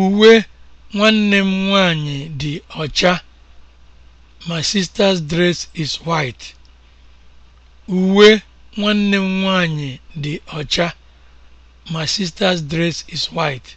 Uwe nwanne m nwanyị dị ọcha. My sister's dress is white. nwanyị dị ọcha. My sister's dress is white.